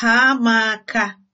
Ha m aka!